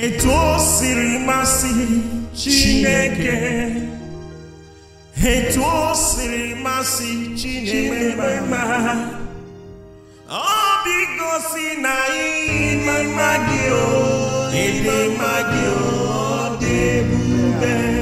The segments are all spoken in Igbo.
etu o siri masị chineke etu o siri masị chineke ma ọ dịgosi na ịma gị o na gị o ima gi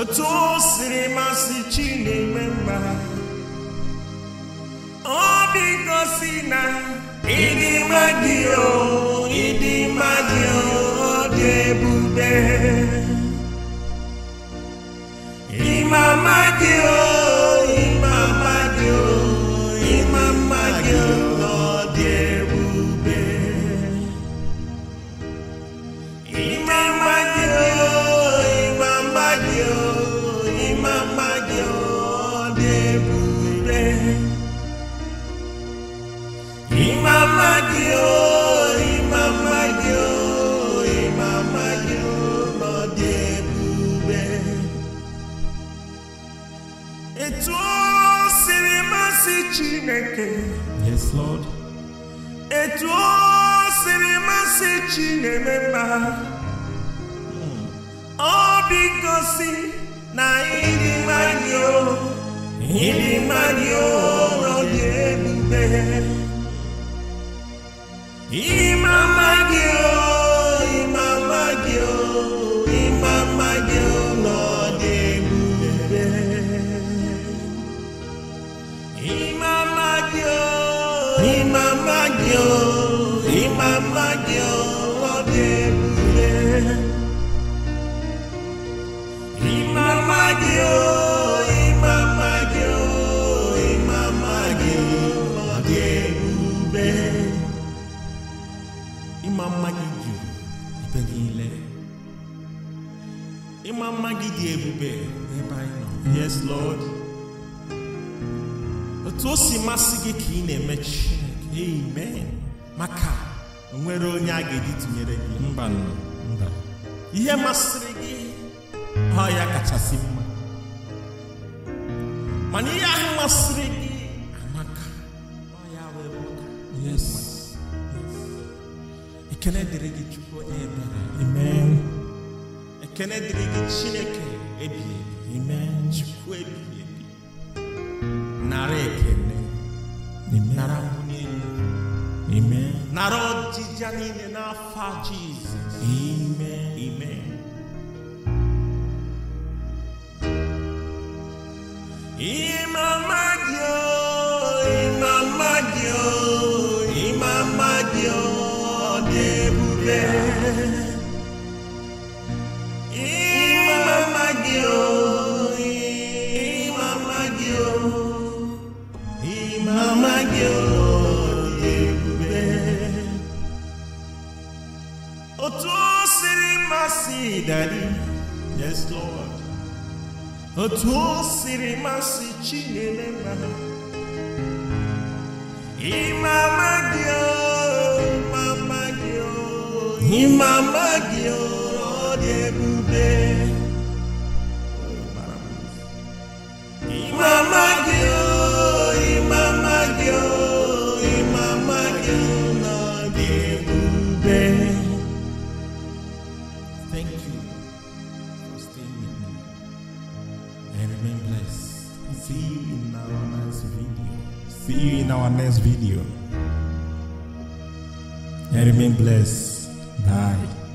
otu o siri masị chi na-eme mma ọ bikosi na ịdị mmadụ o ịdị mmadụ ọ dị ebube ịma mmadụ o Yes, Lord. Etu o siri masị Chineme mma. Hmm. Ọ dị gosi na ịdị mmadụ o, ịdị mmadụ o nọ dị ebube. Ịma mmadụ o. yo imama yo odebure imama yo imama yo imama yo odebube imama gidi ibedile imama gidi ebube ebe anyị nọ yes lord otu o si masị gị ka ị na-eme chineke amen maka nwere onye a ga-eji tụnyere gị mba mba ihe masịrị gị ọ ya kachasị mma mana ihe ahụ masịrị gị amaka ọ ya wee ụka yes ekele dịrị gị chukwu onye ebere amen ekele dịrị gị chineke ebighị ebi amen chukwu ebighị ebi nara ekele nara mbụ Amen. Narodzi Janine Nafa Jesus. Amen. Amen. Imama Dio, Imama Dio, Imama Dio, Debube. Imama Dio, Imama Dio, Imama Dio. Otosiri mercy, Daddy. Yes, Lord. Otosiri mercy, Chinelema. Imama Gio, Mama Gio, Imama Gio, Odebube. Imama Gio, Imama Gio, Imama Gio, Odebube. See you in our next video. See you in our next video. And remain blessed. Bye.